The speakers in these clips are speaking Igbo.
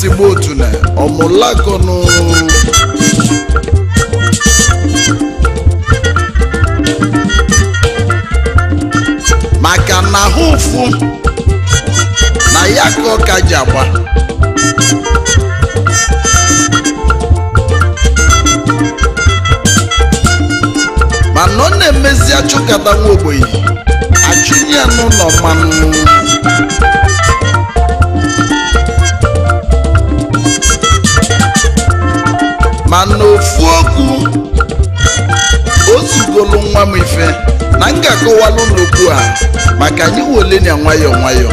sigbo otu na ọmụlakọnụ nwa m ife na m ga-akọwalụ ụlọ a maka anyị wole na nwayọọ nwayọọ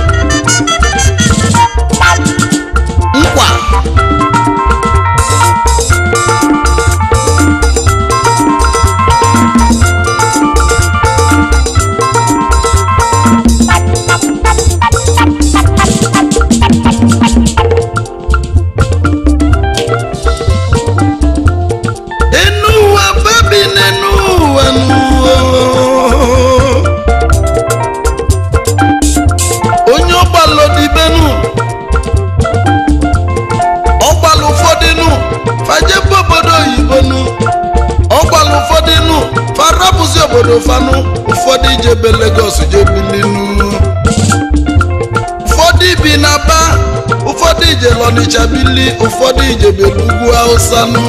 ndị ụfọdụ ijebe n'ugwu hausa nụ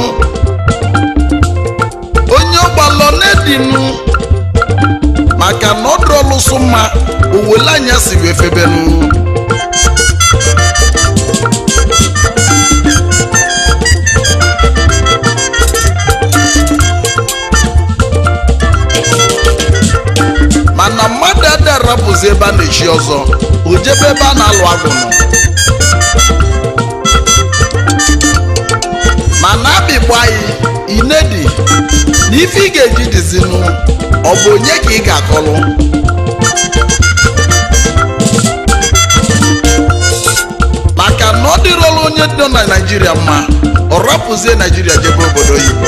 onye ọgbalọ na-edinu maka na ọdụrọlụsụ mma owele anya siri efebenụ mana mmadụ adara bụzi ebe a na-echi ọzọ ojebe ebe a na-alụ agụ nọ mgbayi inedi na ife ị ga-eji dịzinụ ọ bụ onye ka ị ga-akọlụ maka na ọ dịrọla onye nọ na naijiria mma ọ rapụzie naijiria jebe obodo oyibo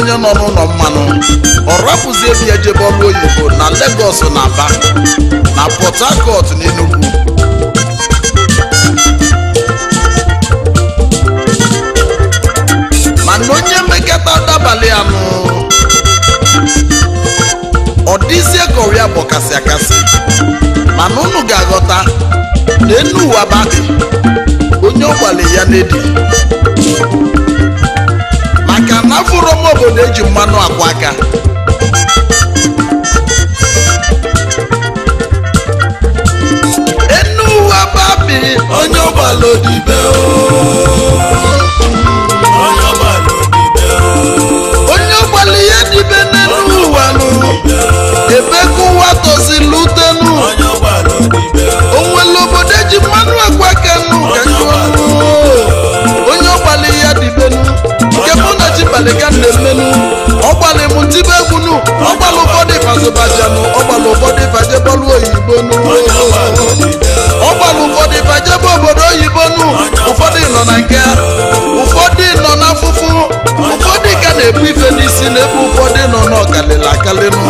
onye nọ n'ụlọ mmanụ ọrụ akwụzi ebe ya jebe ọrụ oyibo na Lagos na Aba na Port Harcourt na Enugu mana onye mmekọta dabalị anụ ọ dịzie bụ akasị mana unu ga-aghọta na enu ụwa badị onye ọgbalị ya na-edi na afụrụ m obodo eji mmanụ akwụ aka enuwe babi onye ọgbala odibe onye ọgbala ihe dibe n'elu ụwa ebekụwa tozili utenu onwere obodo eji mmanụ akwụ aka ka nke ọnụ abalị ka nne mmenu ọgbalị m ntibe egwu nu ọgbalị ụfọdụ ịfazụbajanụ ọgbalị ụfọdụ ịfajebọlụ oyibo nu ọgbalị ụfọdụ ịfajebe obodo oyibo nu ụfọdụ nọ na nke ụfọdụ nọ na afụfụ ụfọdụ ka na-ebu ife n'isi n'ebe ụfọdụ nọ n'ọkalịla akalị nụ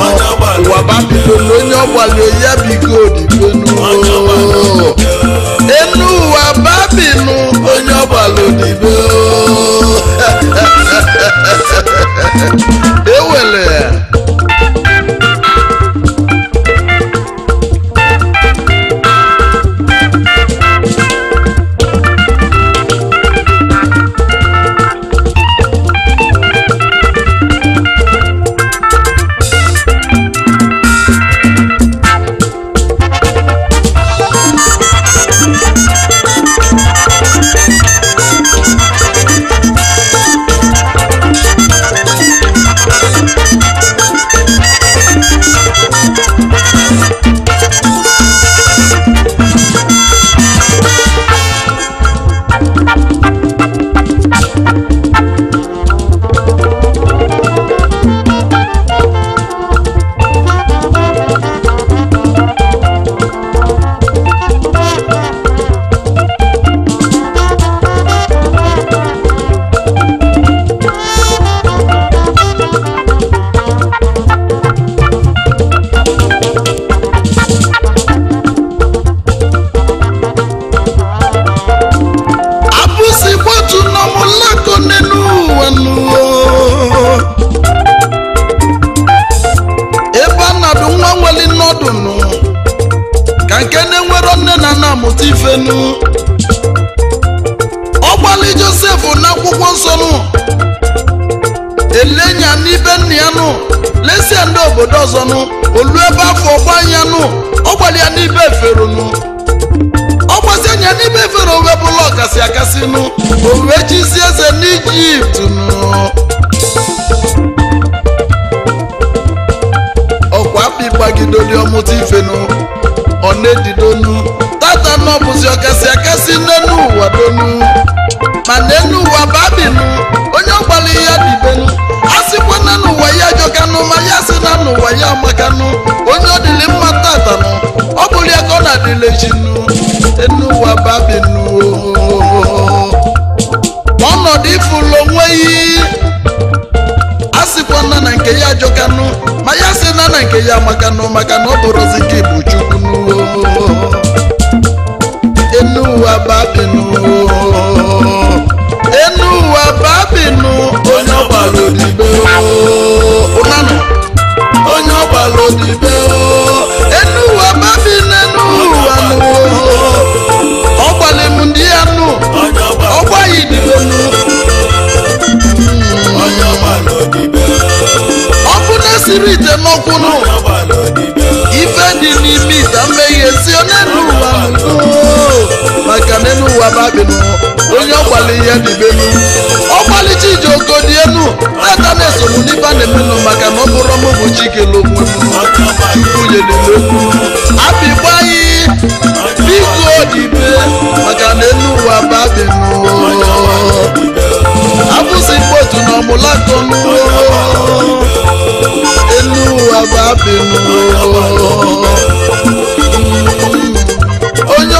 ụwa babido na onye ọgbalị ya bigo odibo nu enu ụwa babinu bá lòdì bó. ọbịa ife ifenu ọ na-edidonu tata na ọbụzi ọkasị akasị n'enu ụwa donu ma n'enu ụwa babinu onye ọgbara ya dibenu a sịkwa na n'ụwa ya jọkanụ ma ya sị na n'ụwa ya amakanụ onye ọ mma mma tatanụ ọ bụrụ ya ka na-adịle chinu enu ụwa babinu ọnọdụ ifulu onwe nke ya jọkanụ ma ya sị na na nke ya makanụ maka na ọ bụrụzi gị bụ chukwu n'uwo enuwa mọ́kúnù. Ife di ni mi dame yesi onenu wa nù. Maka nenu wa ba binu, onye ọgbali ya di benu. Ọgbali chi ji ogo di enu, n'ata na-esogbu n'ife a na-emenụ maka na ọ bụrụ ọmụ bụ chi kele okwu Chukwu nyere m okwu. Abi gbayi, biko ibe, maka nenu wa ba binu. Abụsị mkpotu na ọmụla akọ Olúwa má bínú onye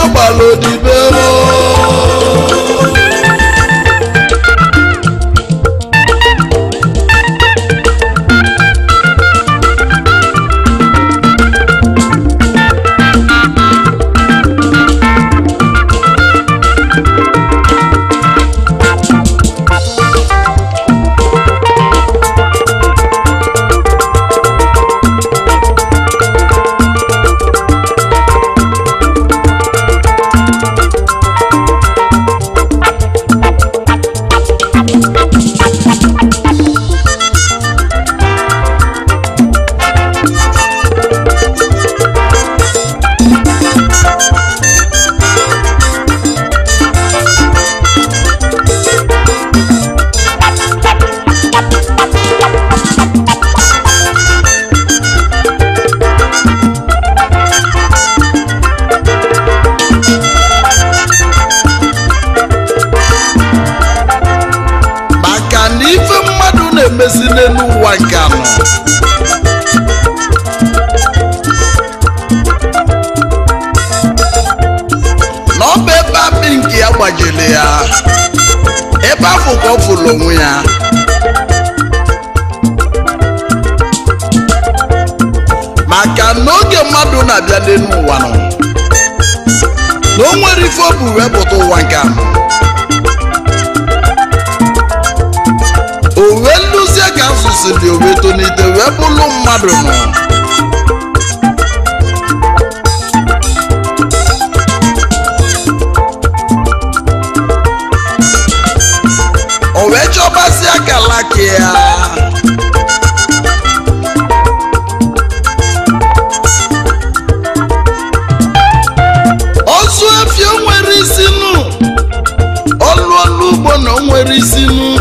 ugbo na o nwere isi nu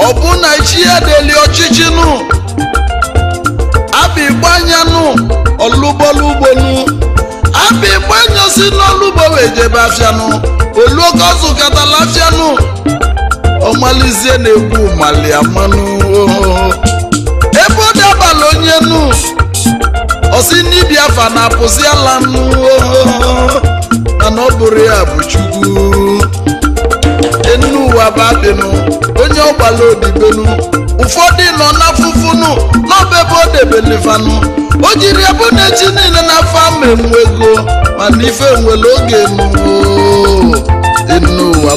ọ bụ na chi ya deli ọchịchị nụ abịa igbo anya nụ ọlụgbọlugbo nụ abịa igbo anya si n'ọlụgbo wee jebe afịa nụ afịa nụ ọmalizie na ekwu mali amanụ ebe ọ dabala onye nụ ọsị n'ibi afa na-apụzi ala nụ mana ọ bụrụ ya bụ chukwu abadenu onye ọgbala odibenu ụfọdụ nọ n'afụfụnụ n'ọba ebe o debelivanu o jiri ebe na-echi niile na ama enwe ego mana ife nwere oge enụwa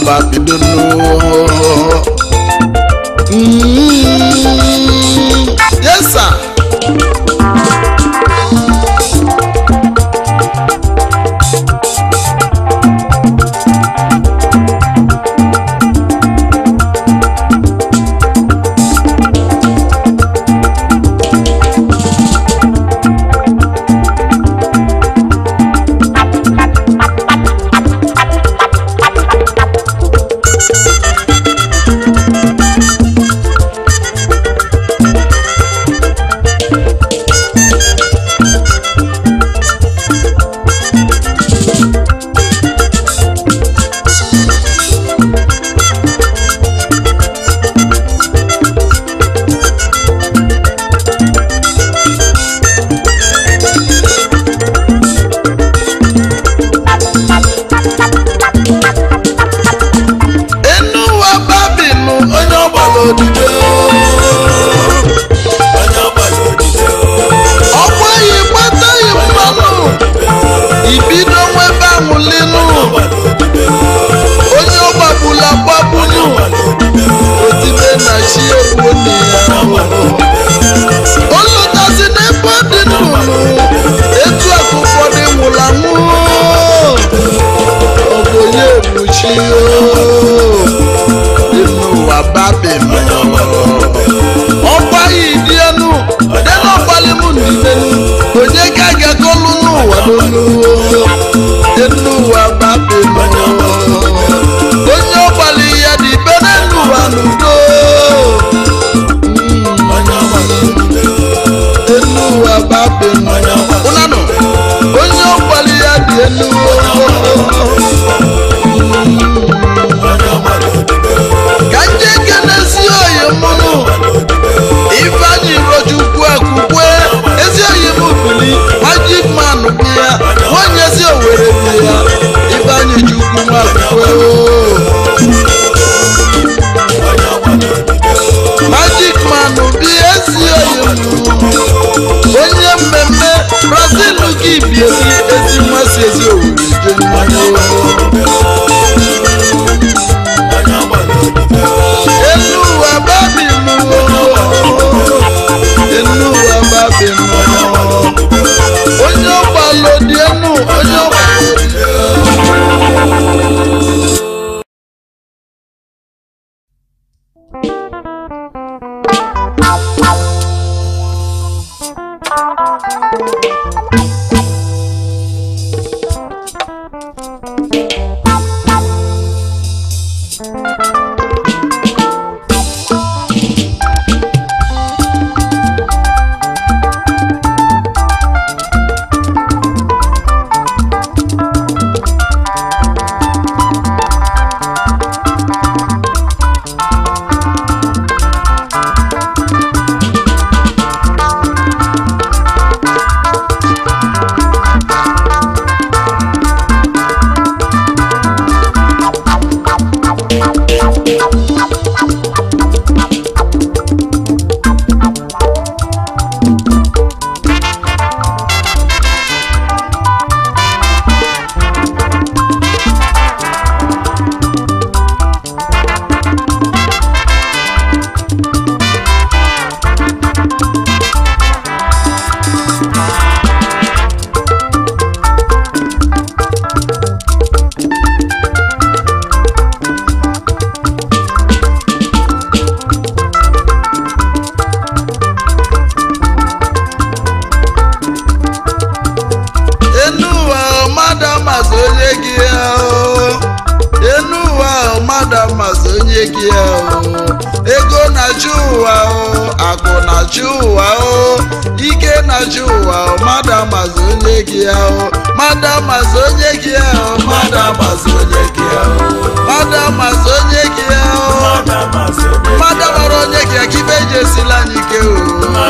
yesa melody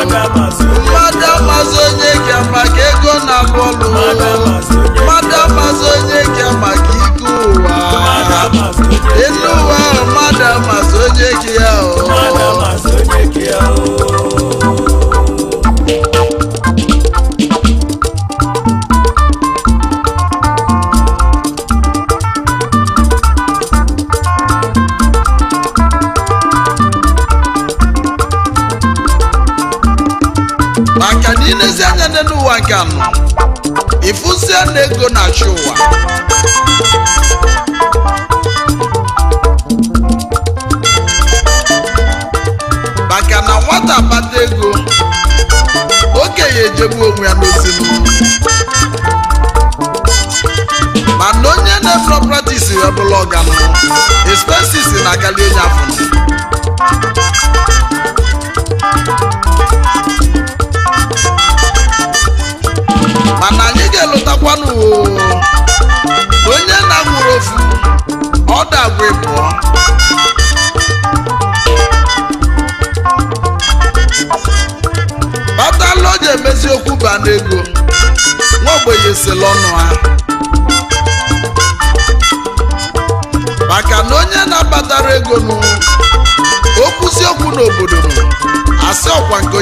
madamazi onye kia maka ego na bọọlụ madamazi onye ga maka ike ụwa elu ụwa ahụ madamazi onye gị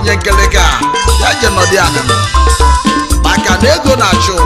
onye nkịlịka eje nọdị ana maka na ego na-achụ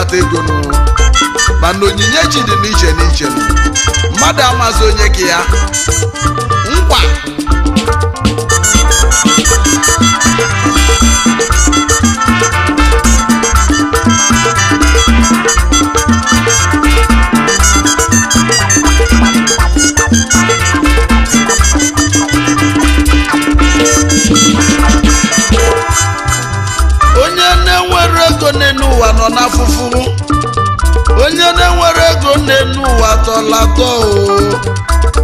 na ego nụ mana onyinye chi dị n'iche n'iche mmadụ amazi onye gị ya nkwa ego n'elu nọ n'afụfụ onye na-enwere ego n'elu ụwa tọla atọ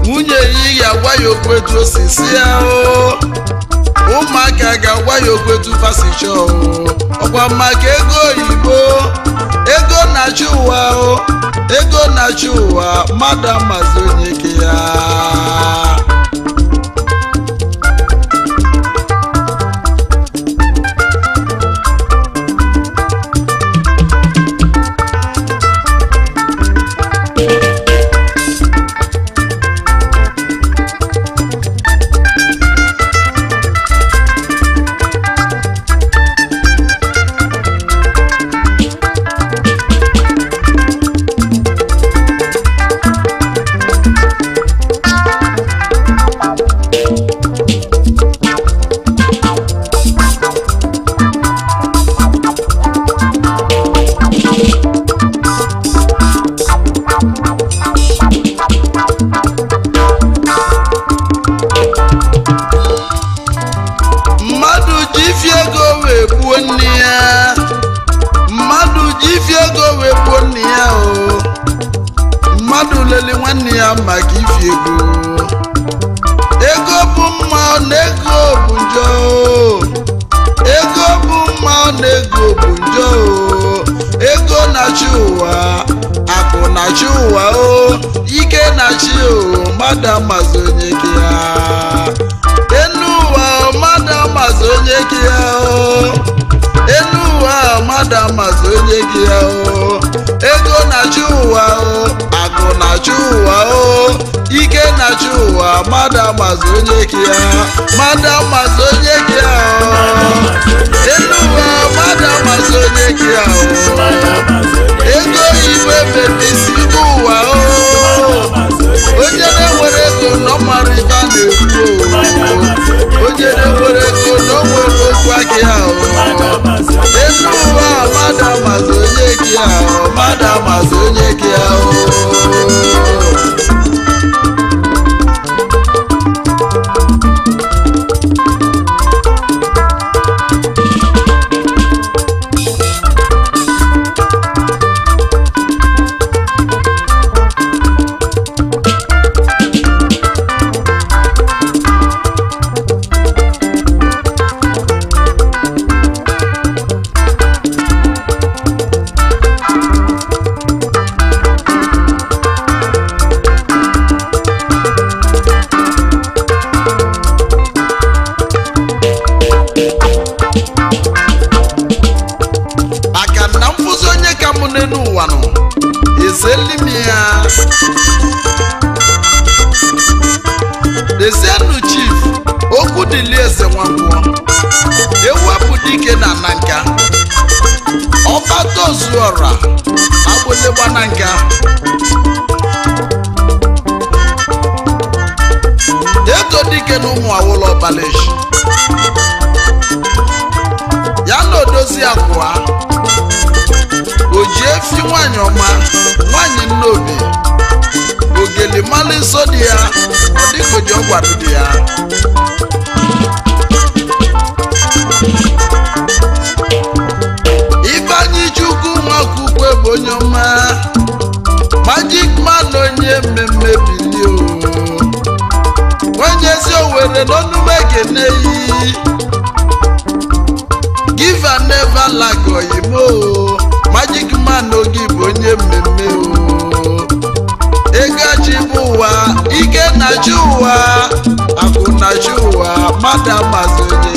nwunye ya ya agwa ya osisi osisi o ụmụaka ga-agwa ya okwu etu ọkwa maka ego oyibo ego na-achị ụwa ego na-achị ụwa mmadụ amazi onye ya a madamas onye ke ya madamas onye ke ya enuwa madamas onye ke ya ego oyibo efetisi n'ụwa onye na-enwere ego n'ọmarịba na-ekwu onye na-enwere ego n'onwere okwu aka ya enuwa madamas onye ke ya madamas onye ke ya ya na odozi abụọ oji efi nwanyị ọma nwanyị nnobi ogeli mala dị ya ọ dịka dị ya ibanye ije ugwu nwaka ukwe bụ onye ọma man onye mmemme bilio onye ezi owere n'onume geneyi give and never lack oyimo magic man oge bụ onye mmemme o ego bụ ụwa ike na ji ụwa akụ na ji ụwa mmadụ amazi onye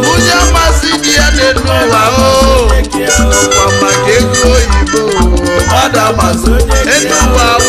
múyá máa sí di ẹnìnú wa o ọ̀pọ̀ àmàdé gbó òyìnbó wa o.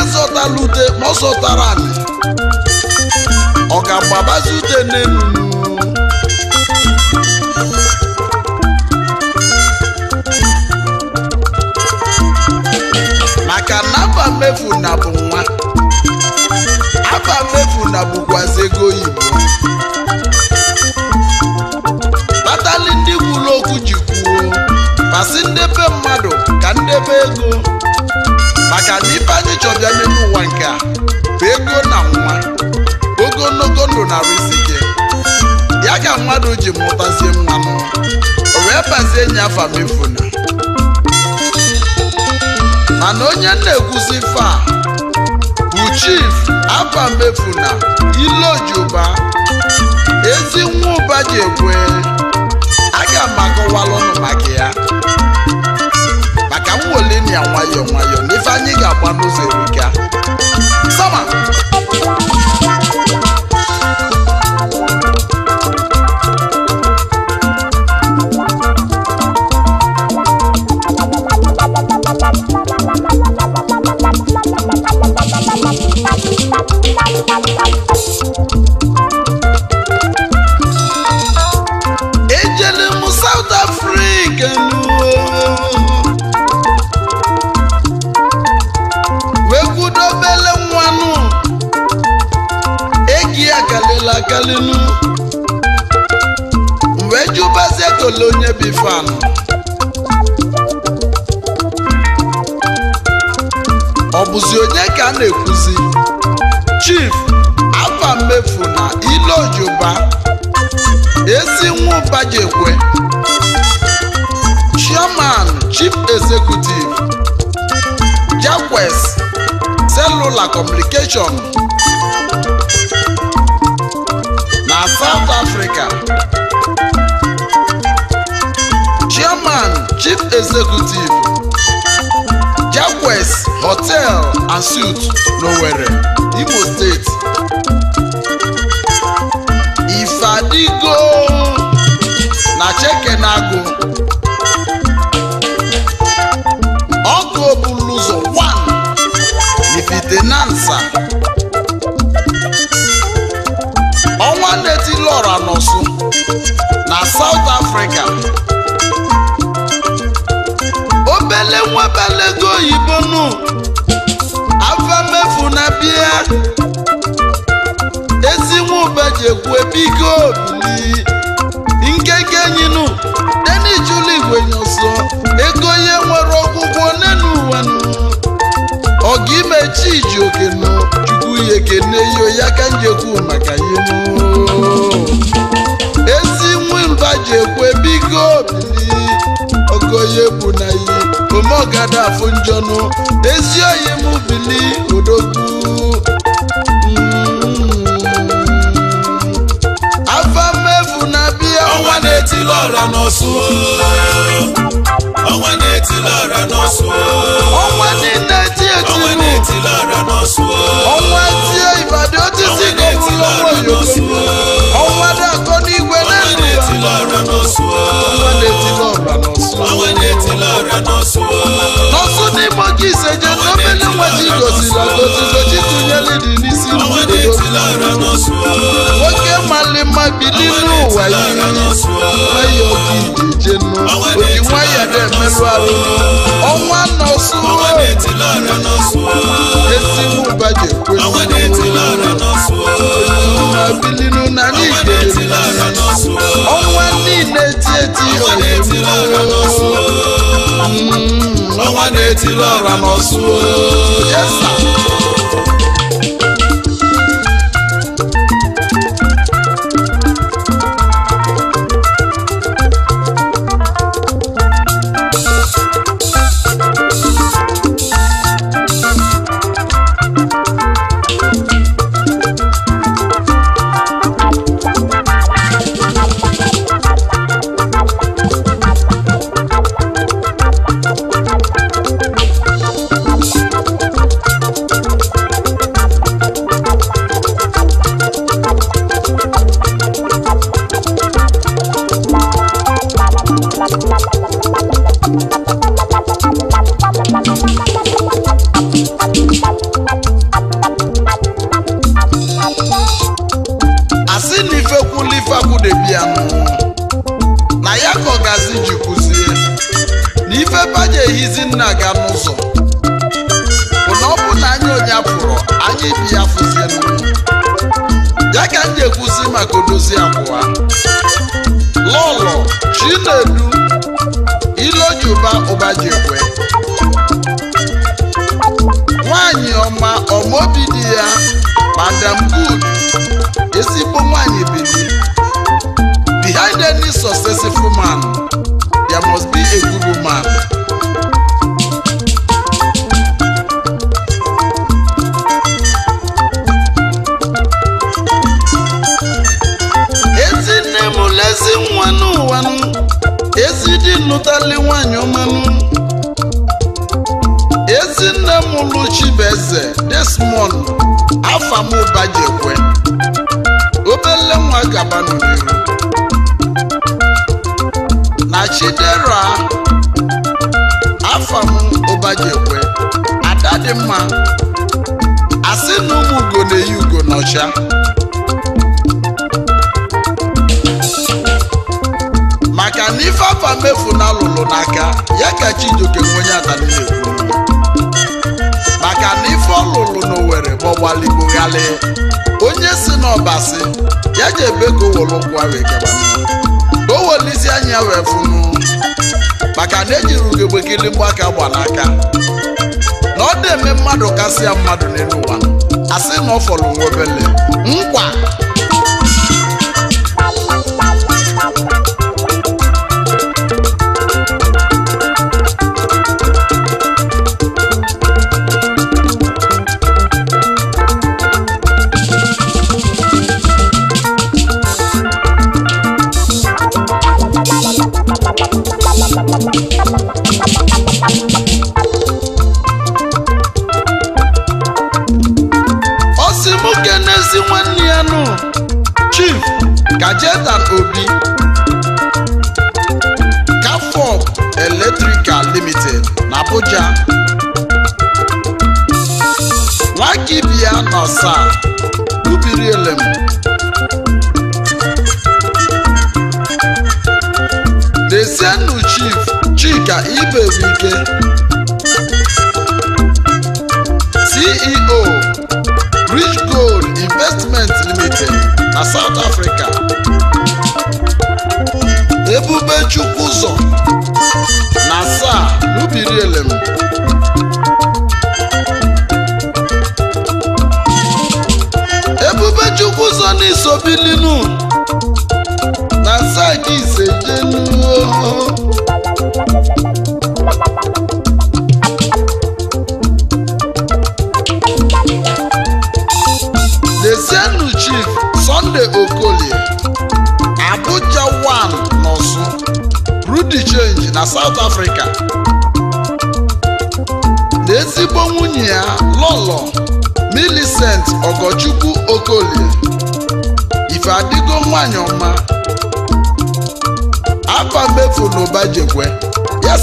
onye zọtara ute ma ọ zọtara anị ọ ga-agbabazi ute n'elu maka na aba mefu na bụ nwa aba mefu na bụkwazi ego oyibo batali ndị kwuru okwu ji kwuo pasị ndebe mmadụ ka ndebe ego maka na ife anyị chọbịa n'elu ụwa nke a bụ ego na nwa ogologo ndụ na risike ya ka mmadụ ji mụtazie mmanụ o wee bazie afọ afamefuna mana onye na fa ife a afọ chief afamefuna ilojuba ezi nwa ụba ji ekwe aga m ọnụ maka ya maka mwole ni nwayọ nwayọ n'ife ga-agba n'ụzọ erika sọma Bye. n'elu wee jụbazie tolo onye bifan ọ bụzi onye ka a na-ekwuzi chief afa mmefu na e si nwụba Ekwe chairman chief executive jakwes cellular communication na South Africa Chairman Chief Executive Jacques Hotel and n'Owere, Imo State Ifadigo na Chekenago ọkụ obulu ụzọ 1 nsa. Ọra Nọsụ na South Africa obele nwebelego oyibo nụ mefu na bịa nụ. nkeke enyinu denijuligwenyoso ego ihe nwere ọgwụgwọ nenu uwenu ọga imechi nwunye kene yo ya ka m maka ilu ezi nwemba ji ekwe biko bili okoye bụ na yi omegada afụ njọnụ ezi oyi m bili odogwu mm. afamefu na bia ọnwa na-etila n'ọsụ ọnwa na eti n'ọsụ nwoke malịma bili n'ụwa ya ogidije n'oji nwayọ na-emerụ arụ ọnwa na ọsụrụ ezigbo ụbaji kwebilinu na n'ije ọnwa niile ti eti ọnwa na-etila ọra n'ọsụ ga ekwuzi maka odozi akwụwa lọlọ chinedu iloji ụba agịlịgba ka gba n'aka na ọ na-eme mmadụ kasịa mmadụ n'elu ụwa asị na ọ fọrọ nkwa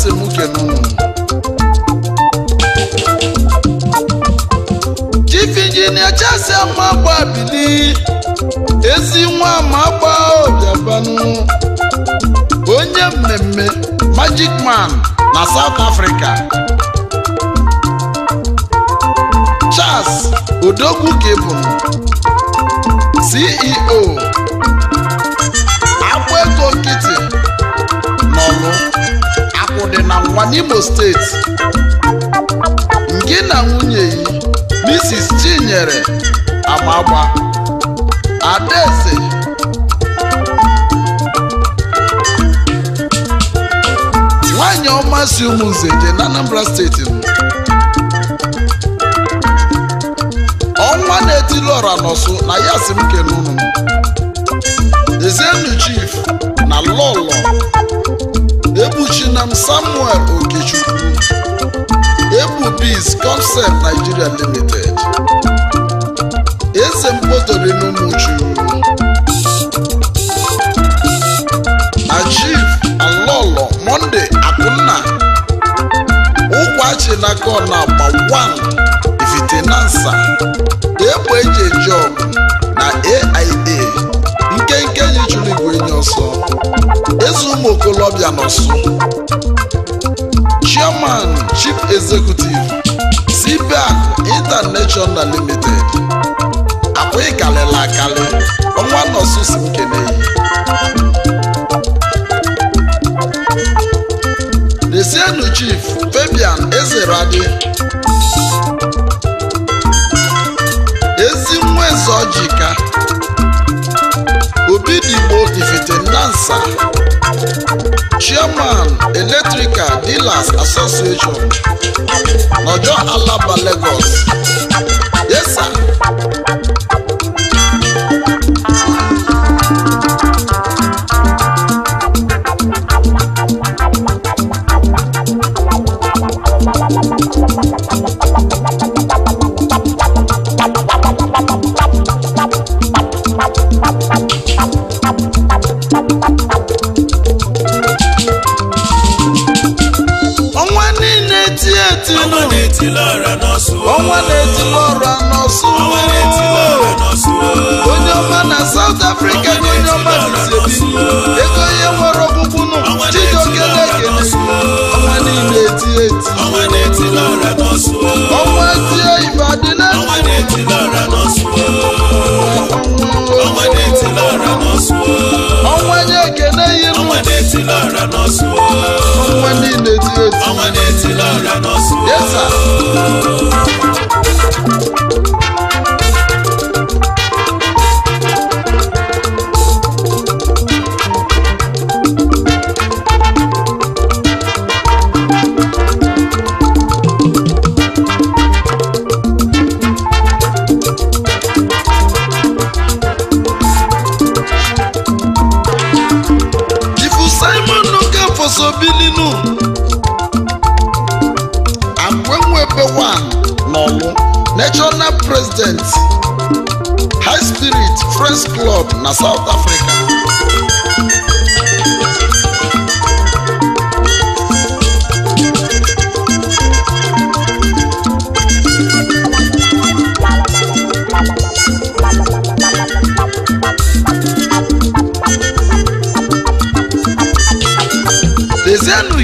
asɛm kɛnu jifiji ni ɛkyɛ sɛ mo abɔ abili esi nwa mo abɔ obiaba no onye mmemme magic man na south africa charles odogwu kebụ ceo akpụ ego nkịtị ọgwụ na nwa n'Imo steeti nke na nwunye yi Mrs. Chinyere Amagba Adaeze nwanyị ọma si ụmụnze dị na Anambra steeti ọnwa na-etili ọra n'ọsụ na ya si m chief na lọlọ ebuchina na samuel okechukwu ebu biz concept nigeria limited eze mkpotorinumuchu achieve alolo monde akunna ụkwachinakona gba 1 ivitinansa ebu eji eji ọgụ okorobịa n'ọsụ chairman chief executive cbac international limited akwa ịkalịla akalị ọnwa nọsụ si nkene desienu chief fabian ezeradi ezi nwa eze ojika obi digbo ifite nansa chairman electrical dealers association lọ́jọ́ alaba lagos ọmọdé.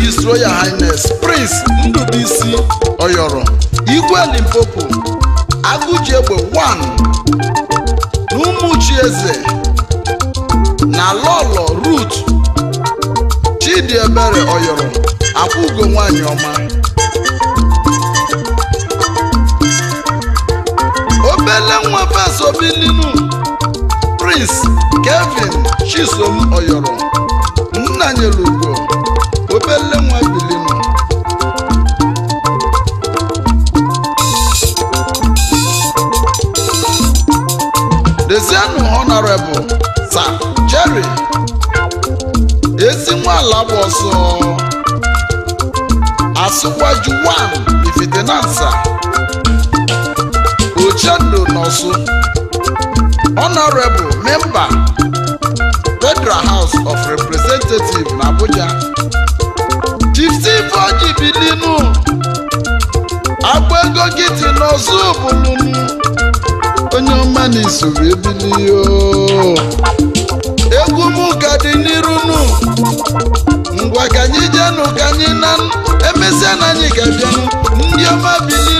his royal highness prince ndubuisi oyoro igwe limpopo agụjiegbe 1 na chieze na lọlọ rut chidiebere oyoro akwụgo nwanyị ọma obele nwa bezobilinu prince kevin chisom oyoro nnanyelu ele nwa bilinu dezienụ honorable Sir Jerry ezi nwa ala bụ ọsọ asụkwaju wan ifitenansa ochendo n'ọsụ honorable member federal house of representatives na abuja ego nkịtị n'ọzọ bụlụnụ onye ọma na-esoro ebiliyo egwu m ka dị n'irunu ngwa ka anyị jenụ ka anyị na emesịa na anyị ga-abịanụ ndị ọma bili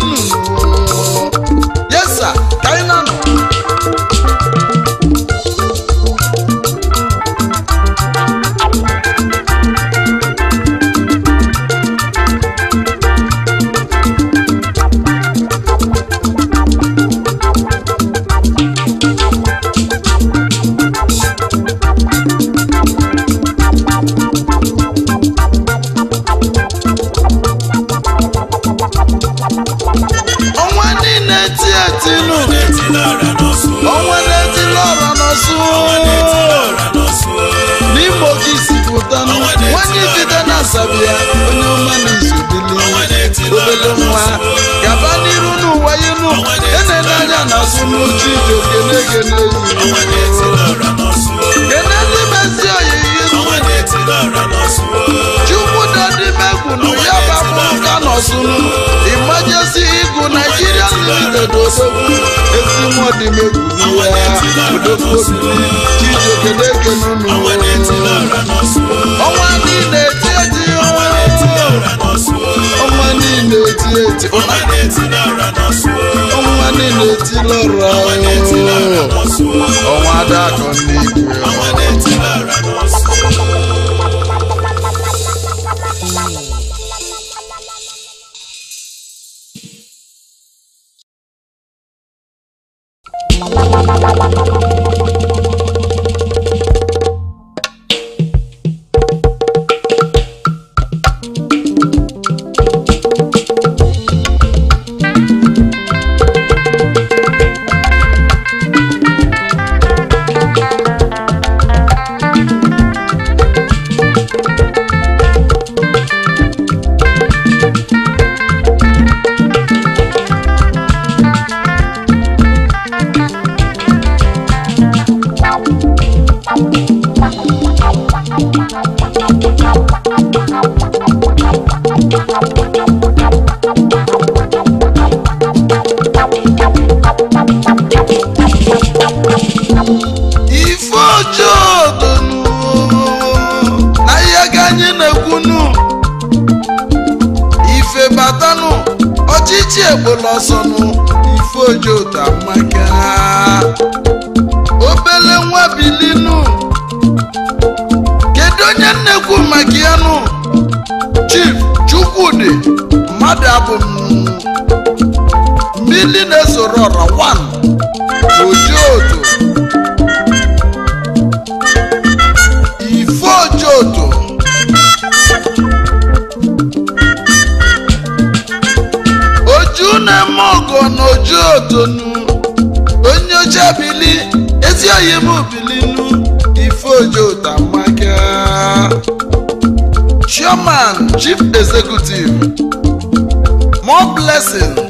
corazón chief executive more blessing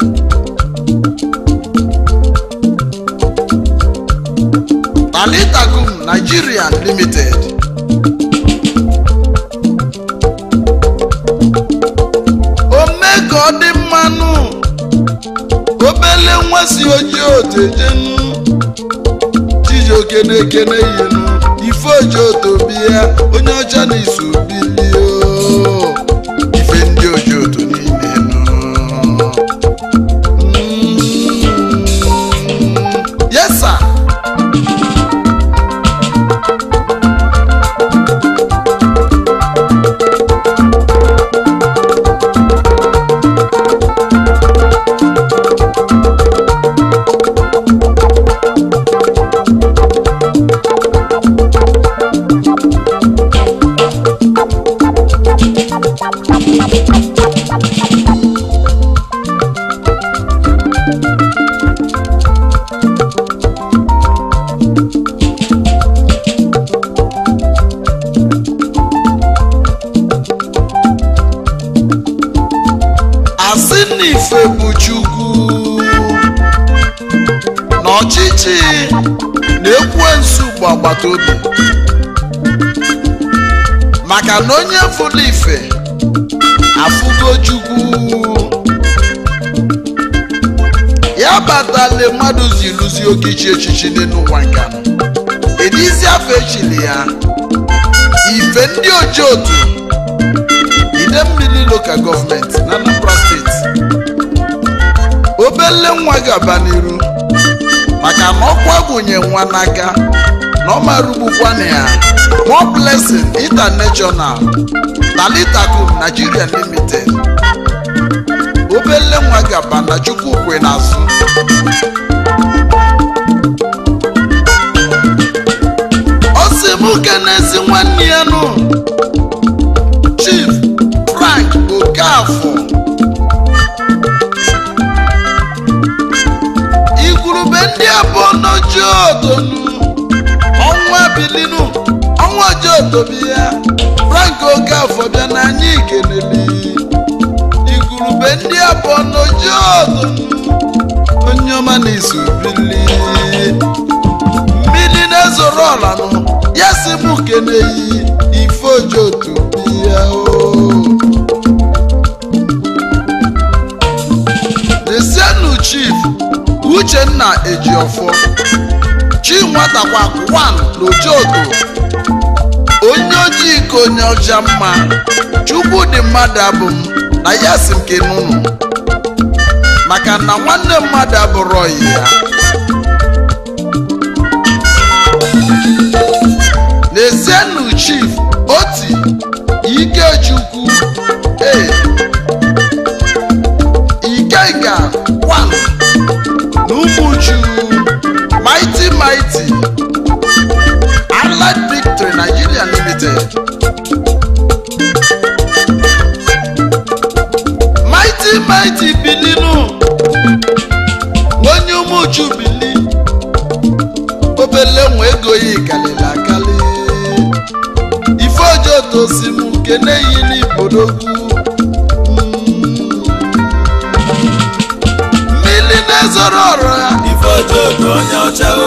maka na onye fụrụ ife afụgo chukwu ya batale mmadụ ji lụzi oke ichi echichi n'elu ụwa nka edizi afọ echili ya ife ndị oji otu ide mmiri loka gọọmenti na Anambra steeti obele nwa ga-aba n'iru maka na ọkwa gụnye nwa n'aka na ọmarugbukwana ya more blessing international group nigeria limited obele nwa gaba na chukwukwe n'azụ osimụke n'ezi nwanne ya nụ chief frank okafọ igwurube ndị abụọ nọjie otonu nwa bilinu ọnwa oji ya frank oke afọ bịa na anyị igurube ndị abụọ na oji onye ọma na izu bili mmiri na-ezoro ọlanụ ya si m keneyi ife oji otu the desienu chief uchenna ejiofọ chinwatakwa kwan n'ojoto onye ojii ka onye ọcha mma chukwu dị mmadụ abụ m na ya si nke n'ụlọ maka na nwanne mmadụ abụrụ ọyị ya n'ezienụ chief oti ikechukwu ee APC Allied Victory Nigeria Limited Mighty Mighty bilino onye ụmụuchu bili obele nwa ego ya kalila akali ifeojotosi m nke na-eyi n'ibodogwu mmiri na ife ojoto onye ọcha o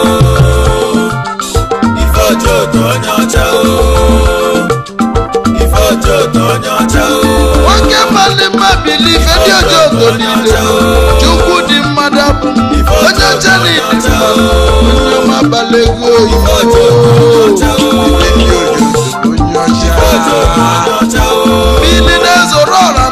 ife ojoto onye ọcha o ife ojoto onye ọcha o nwoke mmadụ mma bili ife dị ojoto niile chukwu dị mmadụ abụ onye ọcha niile onye ọma abalị egwu oyibo onye ọcha mmiri na-ezoro ọra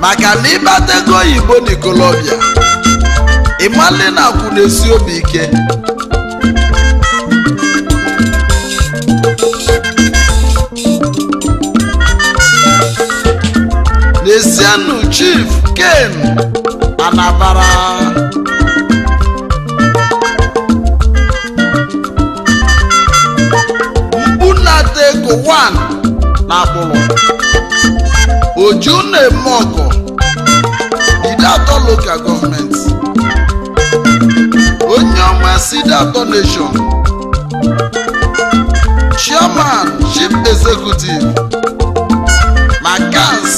maka na ịbata oyibo n'ikolobịa ịmali na akwụ na-esi obi ike n'ezie nu chief ken anabara One, 1 na agbụrụ oju na-eme ọgọ ide atọ lokal gọọmenti onye ọma sida atọ nation chairman chief executive makans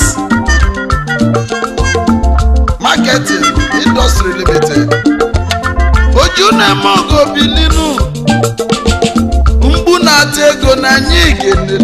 marketing industry limited ojú nà mọ in the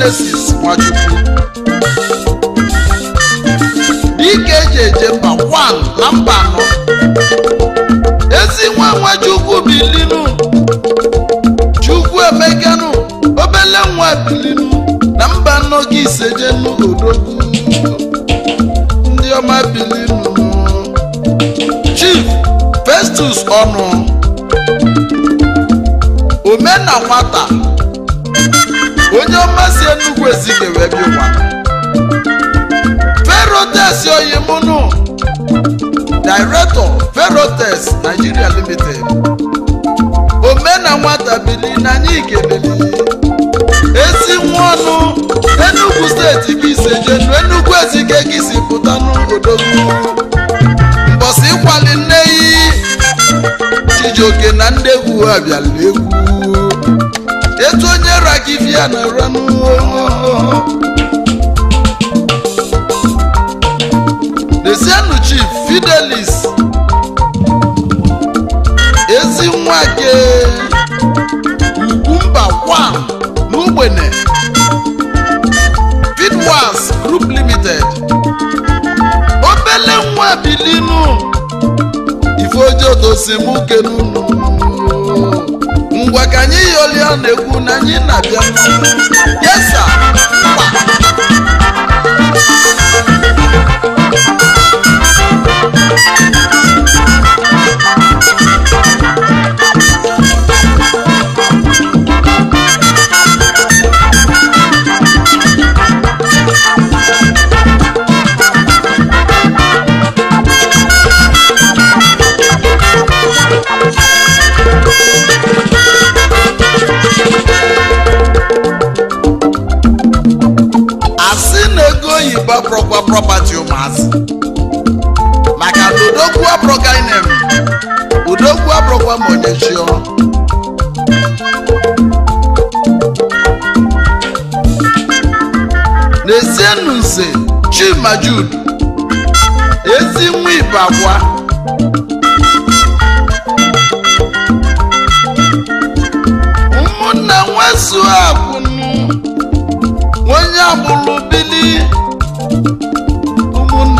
Genesis Nwachukwu dike eji eje mba 1 na mba anọ ezi nwa nwechukwu bilinu chukwu emegenu obele nwa bilinu na mba anọ gị je n'ụlọ ndị ọma bilinu chief Festus ọnụ omena nwata onye si Enugu ezighị wee bịa ụwa Ferrotex Oyimụnụ Director Ferrotex Nigeria Limited omena nwata bili na anyị kelele ezi nwa ọnụ Enugu steeti gị ise jenu Enugu ezige gị si pụta n'odogwu mbọsị ịkwali nne yi Chijioke na Ndegwu egwu etu onye ragivia gị na ra dezienu chief fidelis ezi nwa gị ugwumba kwam n'ugbene fidwas group limited obele nwa bilinu ifeoji odosi ngwa ka anyị yi oli ọ na yesa aprọkwa property ụmụazị maka na udokwu aprọka inem udokwu aprọkwa ma onye chio na-esienu nze Jude ezi bili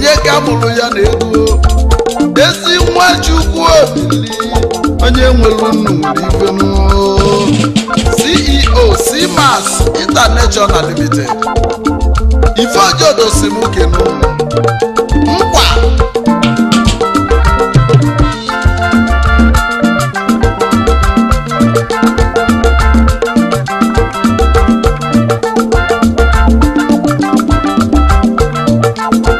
onye ka mụrụ ya na ego ezi nwa chukwu obili onye nwere unu nwere ife ceo cmas international limited ifeojodo si m kenu nkwa Thank you.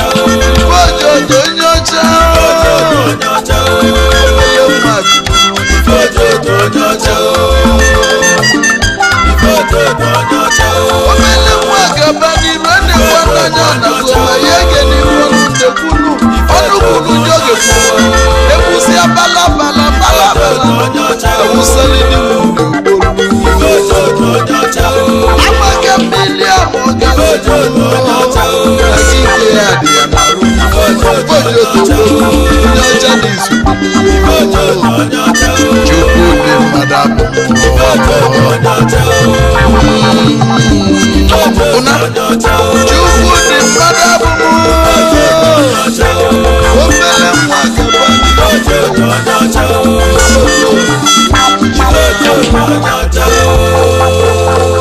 omele nwaka banime na-ekwe n'anya nakụma ya egene iwondekwulu ọnụkwulu joge kwuwa ekwusia balabala balabala ewuselidimụgbo amaka mmiri ahụ gaagike ya dị ya n'arụ obodo togbo ndị ọcha n'izu ìkọjọ lọ́jọ́ tẹ́ o. Chukwu ni mmadụ abụ. Ìkọjọ lọ́jọ́ tẹ́ o. Ìkọjọ lọ́jọ́ tẹ́ o. Chukwu ni mmadụ abụ. Ìkọjọ lọ́jọ́ tẹ́ o. Obere nwa kaba. Ìkọjọ lọ́jọ́ tẹ́ o. Ìkọjọ lọ́jọ́ tẹ́ o.